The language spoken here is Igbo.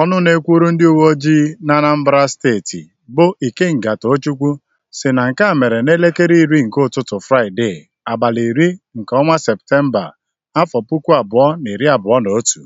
Ọnụ na-ekwuru ndị uwe uweojii n'Anambra Steeti bụ Ikenga Tochukwu sị na nke a mere n'elekere iri nke ụtụtụ Fraịdee abalị iri nke ọnwa Septemba, afọ puku abụọ na iri abụọ na otu.